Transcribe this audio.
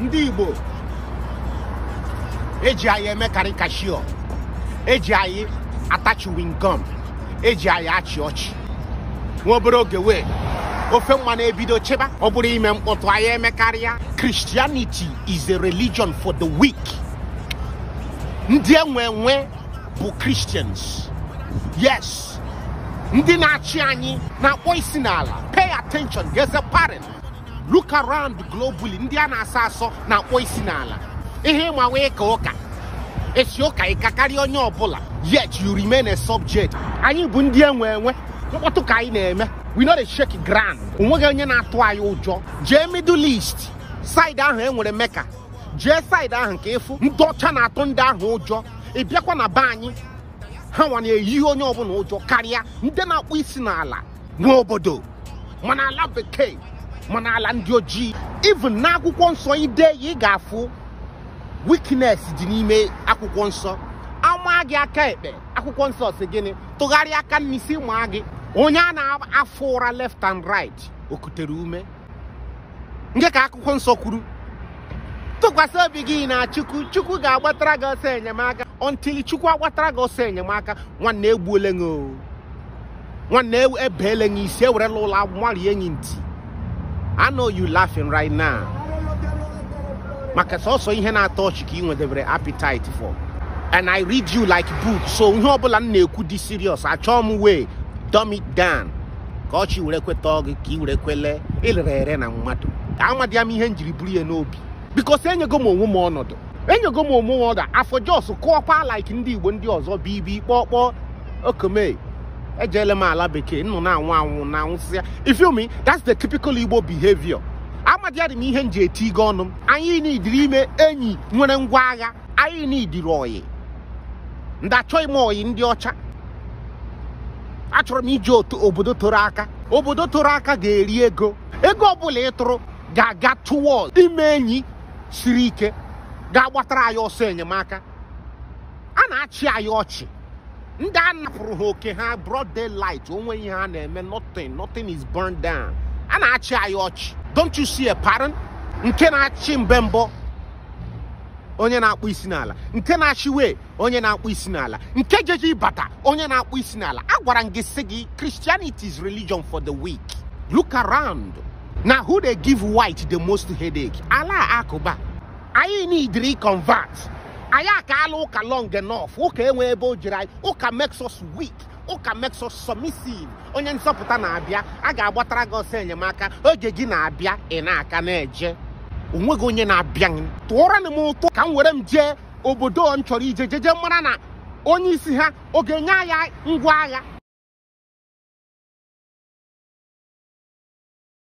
ndị Igbo eji anyị eme karikashọ eji anyị atachi wingom eji anyị achị ọchị nwa obere ofe nwa ebido cheba ọ bụrụ ime me anyị Christianity is a religion for the weak ndị enwe enwe bụ Christians yes ndị na-achị anyị oisinala. pay attention a pattern. look around globally ndị a na-asọ asọ na-akpọ isi n'ala ihe ịma nwee ka ụka esi ụka ịka karịa onye ọbụla yet you remain a subject anyị bụ ndị enwe enwe mkpọtụ ka anyị na-eme we not a shake ground onweghị onye na-atụ anyị ụjọ jee middle east side ahụ e nwere meka jee side ahụ ka ịfụ ndị ọcha na-atụ ndị ahụ ụjọ ị bịakwa na be anyị ha nwa na-eyi onye ọbụla ụjọ karịa ndị na-akpọ isi n'ala nwa obodo mana ala bekee mana ala ndị ojii even na akwụkwọ nsọ ide ya ị ga-afụ wikines dị n'ime akwụkwọ nsọ ama gị aka ekpe akwụkwọ nsọ si gịnị tụgharịa aka n'isi maa gị onye a na-afụ ụra left and right okutere ume nke ka akwụkwọ nsọ kwuru tụkwasị obi gị na chukwu chukwu ga-agbatara gị ọsọ enyemaka ọntili chukwu agbatara gị ọsọ enyemaka nwanne egbuole gị nwanne e-, ebeele gị isi ewerela ụlọ agwụ marie ntị I know you laughing right now maka sọsọ ihe na-atọ ọchị ka ị nwedebere appetite for and I read you like book so ihe ọbụla m na-ekwu dị serious achọọ m we dumb it down ka were kweta gị ka ị were kwele ịlere ere na mmadụ amadi m ihe m jiri buru ya n'obi because enyego m onwe ọnọdụ enyego m onwe ọnọdụ afọ jos kụọkwa like ndị igbo ndị ọzọ bụ ibi kpọọ kpọọ okome ejeele m ala bekee nnụ na-anwụ anwụ na anwụsịa ifiomi that's the typical igbo behavior amadịadị m ihe m ji eti ige ọnụ m anyị n'idiri ime enyi nwere ngwa agha anyị n'idiri oyi ndị achọghị m oyi ndị ọcha achọrọ m iji obodo toro aka obodo toro aka ga-eri ego ego ọbụla ịtụrụ ga-aga towọd ime enyi siri ike ga-agbatara anyị ọsọ enyemaka a na-achị anyị ọchị ndị a napụrụ ha oke ha broad daylight onwe ihe a na-eme nothing nothing is burned down a na-achị anyị ọchị don't you see a pattern nke na-achị mbe onye na-akpụ isi n'ala nke na-achịwe onye na-akpụ isi n'ala nke jeje ịbata onye na-akpụ isi n'ala agwara m gị sị gị Christianity is religion for the weak look around na who dey give white the most headache ala akụba anyị need reconvert anyị akaala ụka long enough ụka enwe ebe o jiri anyị ụka makes us weak ụka makes us submissive onye nsọpụta na-abịa a ga-agbatara gị ọsọ enyemaka oge gị na-abịa ị na-aka na-eje onweghị onye na-abịa tụọra m ụtụ ka m were m jee obodo m chọrọ ije jeje mara na onye isi ha ọ ga-enye agha ngwa agha